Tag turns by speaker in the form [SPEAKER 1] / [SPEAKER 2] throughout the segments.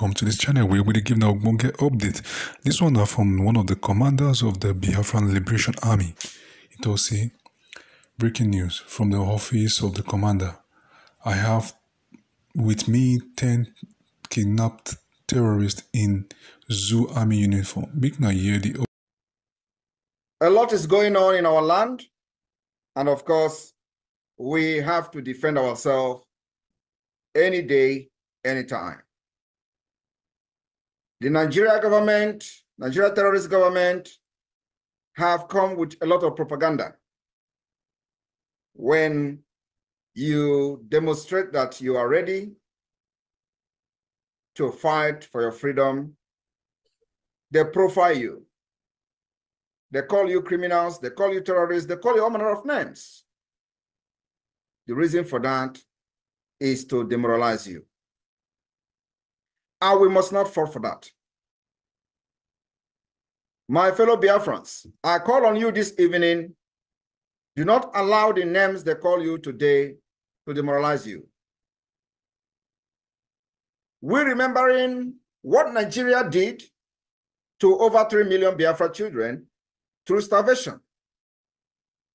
[SPEAKER 1] welcome to this channel where we give now Bonge update. This one are from one of the commanders of the Biafran Liberation Army. It also breaking news from the office of the commander. I have with me 10 kidnapped terrorists in Zoo Army uniform. Big now here the
[SPEAKER 2] A lot is going on in our land and of course we have to defend ourselves any day, anytime. The Nigeria government, Nigeria terrorist government, have come with a lot of propaganda. When you demonstrate that you are ready to fight for your freedom, they profile you. They call you criminals, they call you terrorists, they call you all manner of names. The reason for that is to demoralize you. And ah, we must not fall for that. My fellow Biafrans, I call on you this evening. Do not allow the names they call you today to demoralize you. We're remembering what Nigeria did to over 3 million Biafra children through starvation.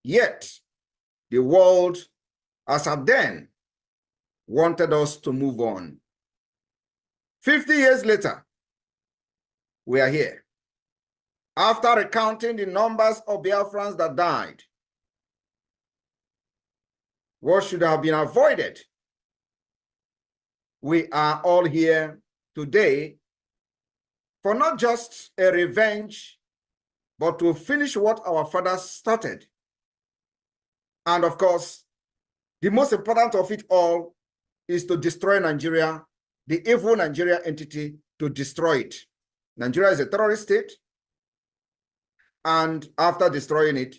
[SPEAKER 2] Yet, the world, as at then, wanted us to move on. 50 years later, we are here. After recounting the numbers of Biafrans that died, what should have been avoided, we are all here today for not just a revenge, but to finish what our fathers started. And of course, the most important of it all is to destroy Nigeria the evil Nigeria entity to destroy it. Nigeria is a terrorist state. And after destroying it,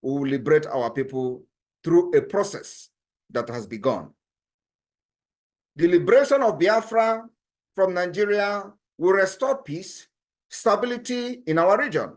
[SPEAKER 2] we will liberate our people through a process that has begun. The liberation of Biafra from Nigeria will restore peace, stability in our region.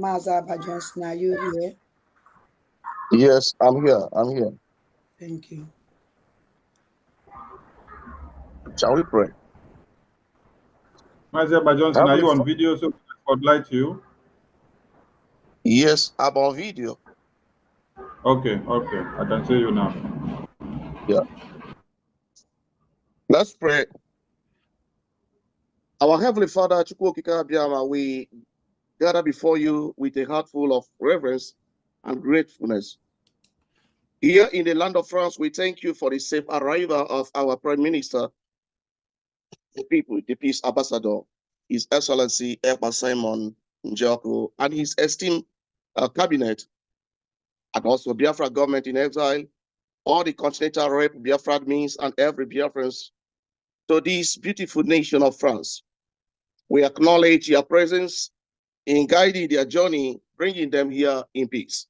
[SPEAKER 1] Mazaba Johnson, are you here?
[SPEAKER 3] Yes, I'm here. I'm here. Thank you. Shall we pray? Mazaba Johnson,
[SPEAKER 1] are you on video so we can spotlight you? Yes, I'm on video. Okay, okay. I can see you now. Yeah.
[SPEAKER 3] Let's pray. Our Heavenly Father, we gather before you with a heart full of reverence and gratefulness. Here in the land of France, we thank you for the safe arrival of our Prime Minister, the people, the Peace Ambassador, His Excellency Emma Simon Njoko, and his esteemed uh, cabinet, and also Biafra government in exile, all the continental rep Biafra means and every Biafran's to this beautiful nation of France. We acknowledge your presence in guiding their journey, bringing them here in peace.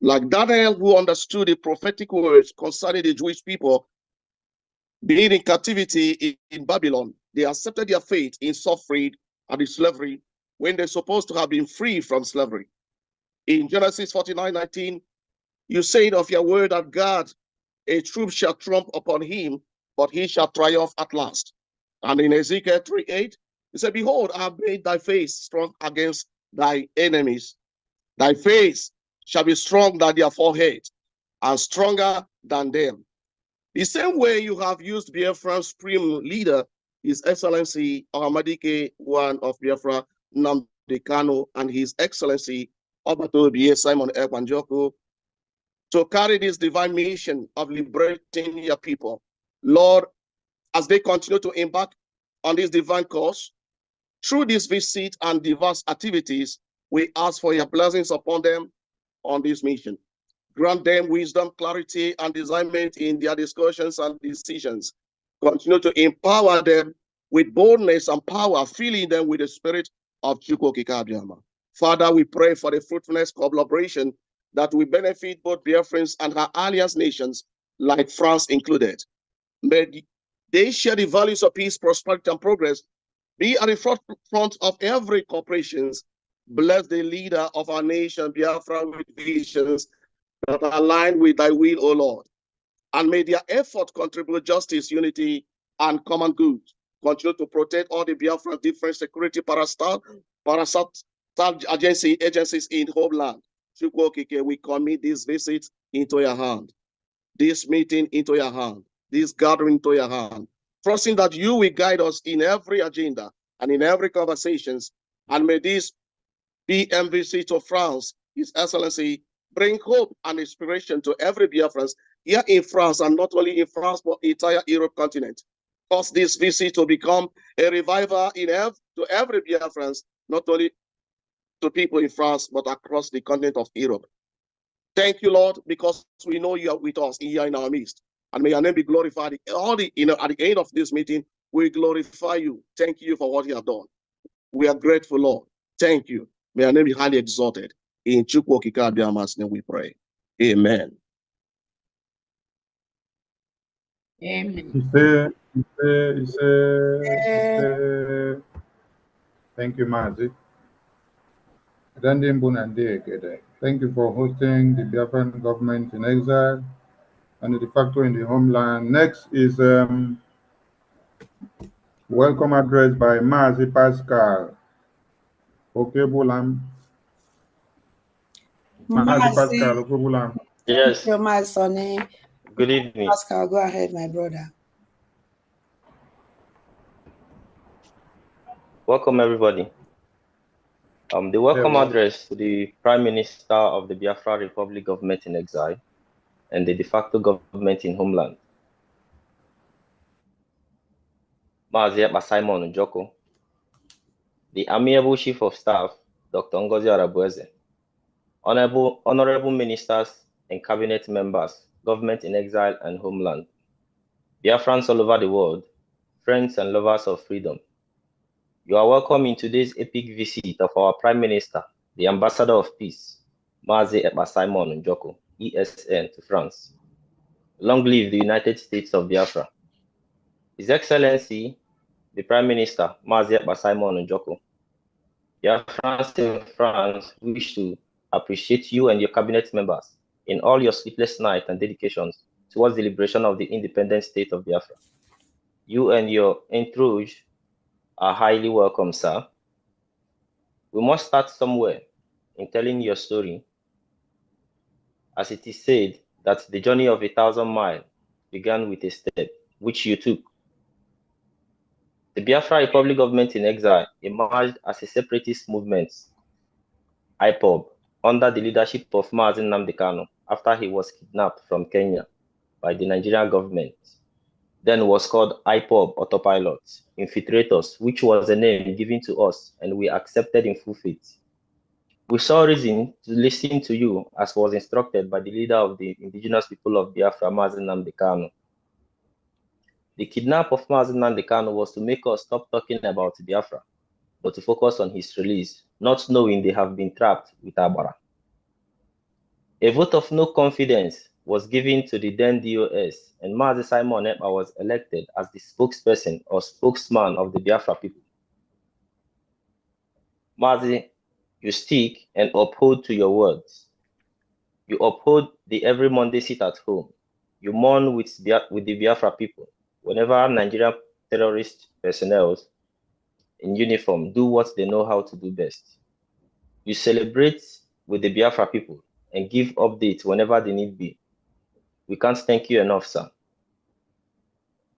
[SPEAKER 3] Like Daniel, who understood the prophetic words concerning the Jewish people being in captivity in, in Babylon, they accepted their fate in suffering and in slavery when they're supposed to have been free from slavery. In Genesis 49 19, you said of your word that God, a troop shall trump upon him, but he shall triumph at last. And in Ezekiel 3 8, he said, Behold, I have made thy face strong against thy enemies. Thy face shall be strong than their forehead, and stronger than them. The same way you have used Biafra's supreme leader, His Excellency Oramadike Wan of Biafra, Namdi and His Excellency Obato Simon Ekwanjoko, to carry this divine mission of liberating your people. Lord, as they continue to embark on this divine course, through this visit and diverse activities, we ask for your blessings upon them on this mission. Grant them wisdom, clarity, and discernment in their discussions and decisions. Continue to empower them with boldness and power, filling them with the spirit of Chukwokikabiyama. Father, we pray for the fruitfulness collaboration that will benefit both Biafrans and her alliance nations, like France included. May they share the values of peace, prosperity, and progress be at the forefront of every corporations. Bless the leader of our nation, Biafra, with visions that are aligned with thy will, O Lord. And may their effort contribute justice, unity, and common good. Continue to protect all the Biafra different security parastat, parastat agency, agencies in homeland. we commit this visit into your hand, this meeting into your hand, this gathering into your hand trusting that you will guide us in every agenda and in every conversations. And may this be MVC to France, His Excellency, bring hope and inspiration to every Biafran here in France, and not only in France, but entire Europe continent. Cause this visit to become a revival in ev to every Biafran, not only to people in France, but across the continent of Europe. Thank you, Lord, because we know you are with us here in our midst and may your name be glorified. All the you know, at the end of this meeting, we glorify you. Thank you for what you have done. We are grateful, Lord. Thank you. May your name be highly exalted. In Chukwokikabiama's name we pray. Amen.
[SPEAKER 4] Amen.
[SPEAKER 1] Thank you, Mazi. Thank you for hosting the Biafran government in exile and the factor in the homeland. Next is um, welcome address by Marzi Pascal. Okay, Bulam.
[SPEAKER 4] Pascal, okay,
[SPEAKER 1] Bulam. Yes. Your my Good evening. Pascal, go ahead, my
[SPEAKER 4] brother. Welcome, everybody. Um, the welcome address to the Prime Minister of the Biafra Republic of Met in Exile, and the de facto government in homeland. Maazia Simon Njoko, the Amiable Chief of Staff, Dr. Ngozi Arabueze, honorable, honorable ministers and cabinet members, government in exile and homeland, dear friends all over the world, friends and lovers of freedom, you are welcome in today's epic visit of our Prime Minister, the Ambassador of Peace, Maazia Simon Njoko. ESN to France. Long live the United States of Biafra. His Excellency, the Prime Minister, Mazia Basimon Njoko. Biafrans in France wish to appreciate you and your cabinet members in all your sleepless nights and dedications towards the liberation of the independent state of Biafra. You and your entourage are highly welcome, sir. We must start somewhere in telling your story as it is said, that the journey of a thousand miles began with a step, which you took. The Biafra Republic government in exile emerged as a separatist movement, IPOB, under the leadership of Mazin Namdekano after he was kidnapped from Kenya by the Nigerian government. Then was called IPOB Autopilot, Infiltrators, which was a name given to us and we accepted in full faith. We saw reason to listen to you as was instructed by the leader of the indigenous people of Biafra, Mazin Namdekano. The kidnap of Mazin Namdekano was to make us stop talking about Biafra, but to focus on his release, not knowing they have been trapped with Abara. A vote of no confidence was given to the then DOS, and Mazi Simon Ekpa was elected as the spokesperson or spokesman of the Biafra people. Mazi you stick and uphold to your words. You uphold the every Monday sit at home. You mourn with the, with the Biafra people. Whenever Nigerian terrorist personnel in uniform do what they know how to do best. You celebrate with the Biafra people and give updates whenever they need be. We can't thank you enough, sir.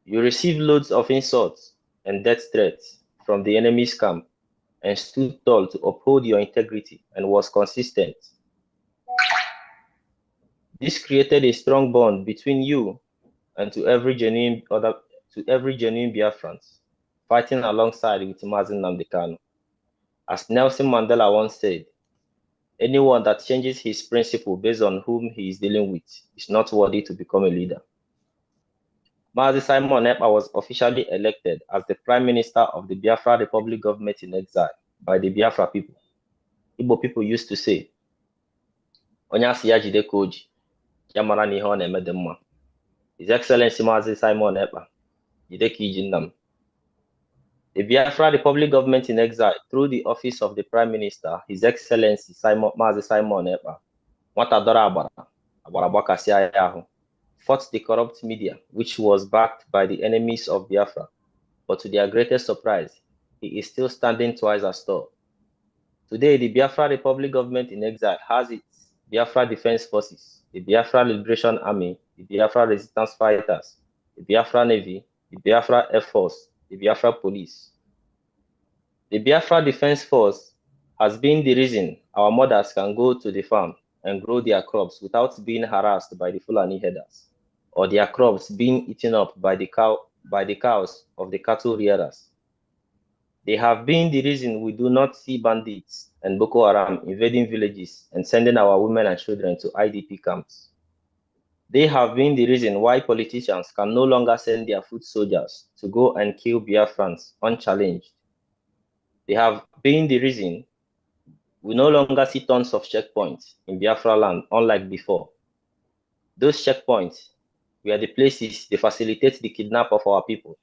[SPEAKER 4] You receive loads of insults and death threats from the enemy's camp and stood tall to uphold your integrity and was consistent. This created a strong bond between you and to every genuine other to every genuine Biafran fighting alongside with Mazin Namdekano. As Nelson Mandela once said, anyone that changes his principle based on whom he is dealing with is not worthy to become a leader. Mazi Simon Epa was officially elected as the Prime Minister of the Biafra Republic government in exile by the Biafra people. Igbo people used to say, Onyasi asị ya jide ka oji, na-eme His Excellency Mazi Simon Ekpa, Yideki jindam. The Biafra Republic government in exile through the office of the Prime Minister, His Excellency Simon, Mazi Simon Ekpa, nwata dora Abara, agbara gbakasịa ya ahụ fought the corrupt media, which was backed by the enemies of Biafra. But to their greatest surprise, he is still standing twice as tall. Today, the Biafra Republic government in exile has its Biafra Defense Forces, the Biafra Liberation Army, the Biafra Resistance Fighters, the Biafra Navy, the Biafra Air Force, the Biafra Police. The Biafra Defense Force has been the reason our mothers can go to the farm and grow their crops without being harassed by the Fulani herders or their crops being eaten up by the cow by the cows of the cattle rearers. They have been the reason we do not see bandits and Boko Haram invading villages and sending our women and children to IDP camps. They have been the reason why politicians can no longer send their foot soldiers to go and kill Biafrans unchallenged. They have been the reason we no longer see tons of checkpoints in Biafra land, unlike before. Those checkpoints were the places they facilitate the kidnap of our people.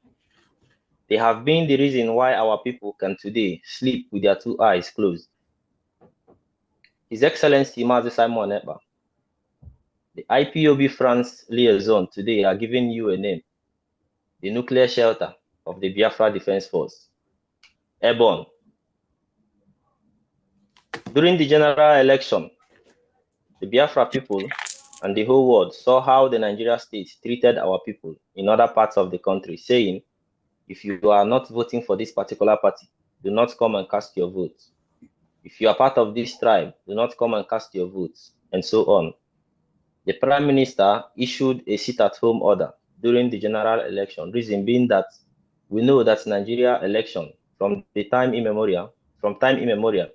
[SPEAKER 4] They have been the reason why our people can today sleep with their two eyes closed. His Excellency Mazi Simon Eba, the IPOB France liaison today are giving you a name, the nuclear shelter of the Biafra Defense Force, Ebon. During the general election, the Biafra people and the whole world saw how the Nigeria state treated our people in other parts of the country, saying, if you are not voting for this particular party, do not come and cast your vote. If you are part of this tribe, do not come and cast your votes, and so on. The prime minister issued a sit at home order during the general election, reason being that we know that Nigeria election from the time immemorial, from time immemorial,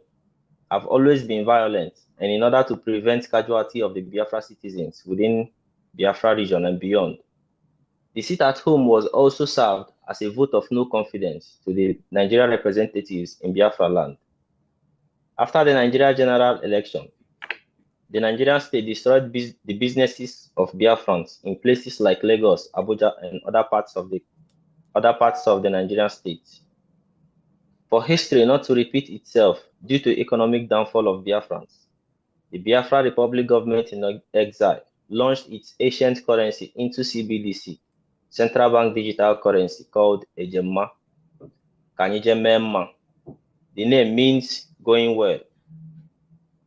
[SPEAKER 4] have always been violent, and in order to prevent casualty of the Biafra citizens within Biafra region and beyond. The seat at home was also served as a vote of no confidence to the Nigerian representatives in Biafra land. After the Nigeria general election, the Nigerian state destroyed bus the businesses of Biafrans in places like Lagos, Abuja, and other parts of the other parts of the Nigerian state for history not to repeat itself due to economic downfall of Biafrans. The Biafra Republic government in exile launched its ancient currency into CBDC, central bank digital currency called Ejema, Kanijemema. The name means going well.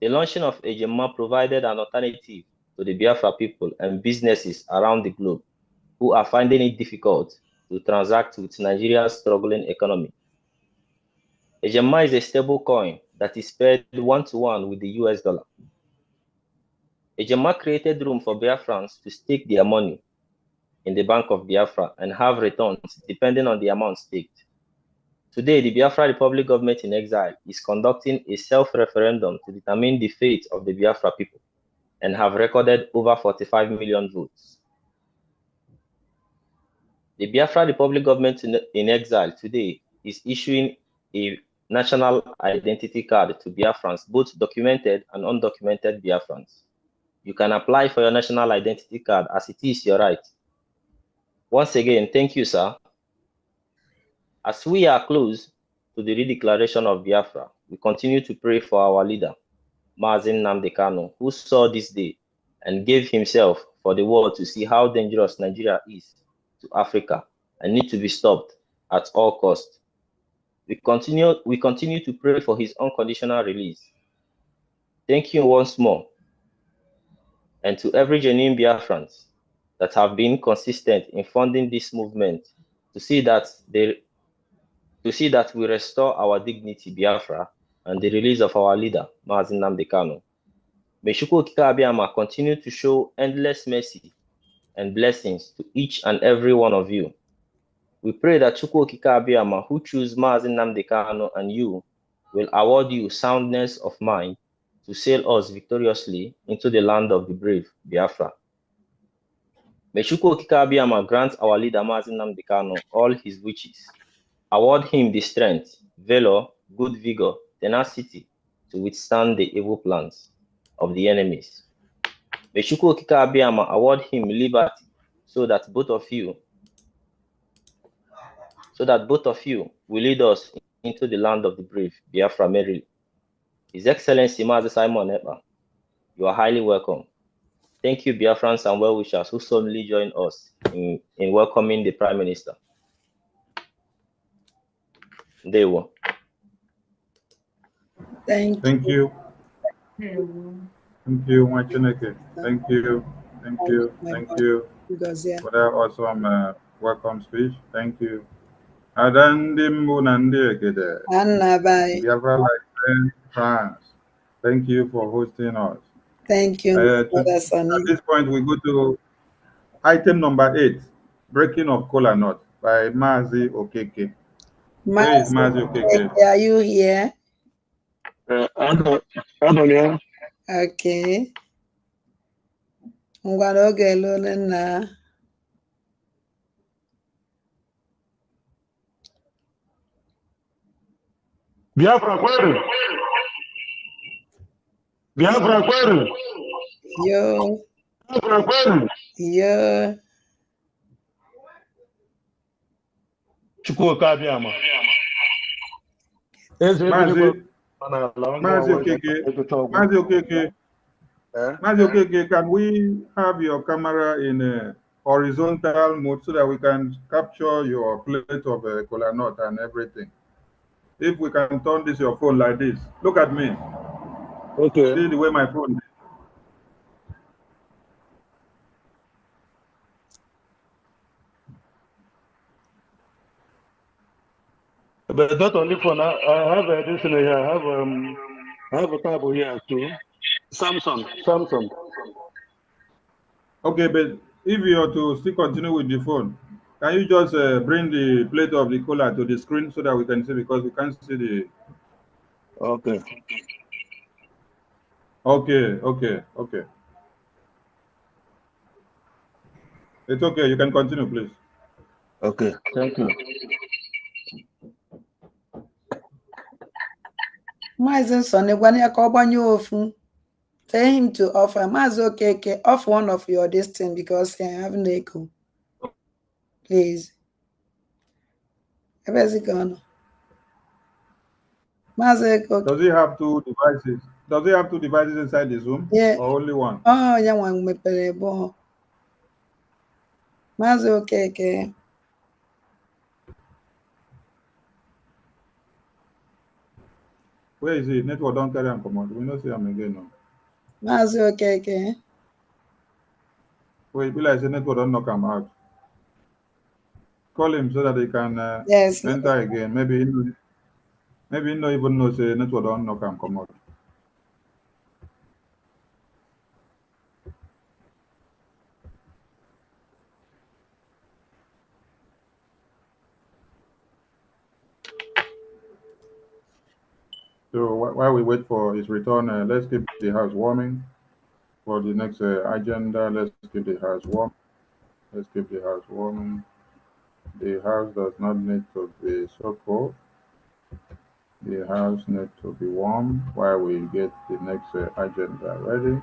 [SPEAKER 4] The launching of Ejema provided an alternative to the Biafra people and businesses around the globe who are finding it difficult to transact with Nigeria's struggling economy HMI is a stable coin that is paired one-to-one with the US dollar. HMI created room for Biafrans to stake their money in the Bank of Biafra and have returns depending on the amount staked. Today, the Biafra Republic government in exile is conducting a self-referendum to determine the fate of the Biafra people and have recorded over 45 million votes. The Biafra Republic government in exile today is issuing a national identity card to Biafrans, both documented and undocumented Biafrans. You can apply for your national identity card as it is your right. Once again, thank you, sir. As we are close to the redeclaration of Biafra, we continue to pray for our leader, Mazin Namdekano, who saw this day and gave himself for the world to see how dangerous Nigeria is to Africa and need to be stopped at all costs. We continue, we continue to pray for his unconditional release. Thank you once more. And to every genuine Biafrans that have been consistent in funding this movement to see that they to see that we restore our dignity, Biafra, and the release of our leader, Mazin Namdekano. May Shukwokika Abiyama continue to show endless mercy and blessings to each and every one of you. We pray that Chukwu Kikabiyama, who chose Mazin Namdekano and you, will award you soundness of mind to sail us victoriously into the land of the brave, Biafra. May Chukwu Kikabiyama grant our leader Mazin Namdekano all his wishes, award him the strength, valor, good vigor, tenacity to withstand the evil plans of the enemies. May Chukwu Kikabiyama award him liberty so that both of you so that both of you will lead us into the land of the brave, Biafra merrily. His Excellency Mazi Simon Epa, you are highly welcome. Thank you, Biafrans and well-wishers who solemnly join us in, in welcoming the Prime Minister. They were. Thank, Thank you.
[SPEAKER 1] you.
[SPEAKER 4] Thank you, you. Thank
[SPEAKER 1] you. Thank you. Thank you. Thank you. For that awesome you. Uh, welcome speech. Thank you ada ndị mbụ na ndị egede Biafra Life France thank you for hosting us thank you uh, to, at this point we go to item number eight breaking of cola nut by Mazi Okeke Mazi, Mazi Okeke are you here
[SPEAKER 3] uh, I don't I'm not know
[SPEAKER 1] okay ngwara oge lụrụ nna Biafra, kweli Biafra, kweli Yo. Biafra, kweli Yo. Chukua Kabyama. Mazi Okeke, Mazi Okeke, eh? Mazi Okeke, can we have your camera in a uh, horizontal mode so that we can capture your plate of a uh, cola nut and everything? If we can turn this your phone like this, look at me. Okay. See the way my phone. But not only phone. I, I have a listener here. I have um, I have a table here too. Samsung. Samsung. Okay, but if you are to still continue with the phone, can you just uh, bring the plate of the cola to the screen so that we can see because we can't see the. Okay. Okay, okay, okay. It's okay. You can continue, please. Okay, thank you. Mazin Sonny, when na-egwanye ka on you, ofu. Tell him to offer. Maazị okay. Off one of your distance because I have an echo. n'ezi ebezika ọnụ maazị oke does he have two devices does he have two devices inside his room yeah. or only one oh ya nwa mepere ebe ọ maazị okeke where is he network don carry am comot we no see am again o maazị okeke wait be like say network don knock am out call him so that he can uh, yes. enter again. Maybe he, maybe he no even knows the network don't know can come out. So while we wait for his return, uh, let's keep the house warming for the next uh, agenda. Let's keep the house warm. Let's keep the house warming. The house does not need to be so cold. The house needs to be warm while we get the next uh, agenda ready.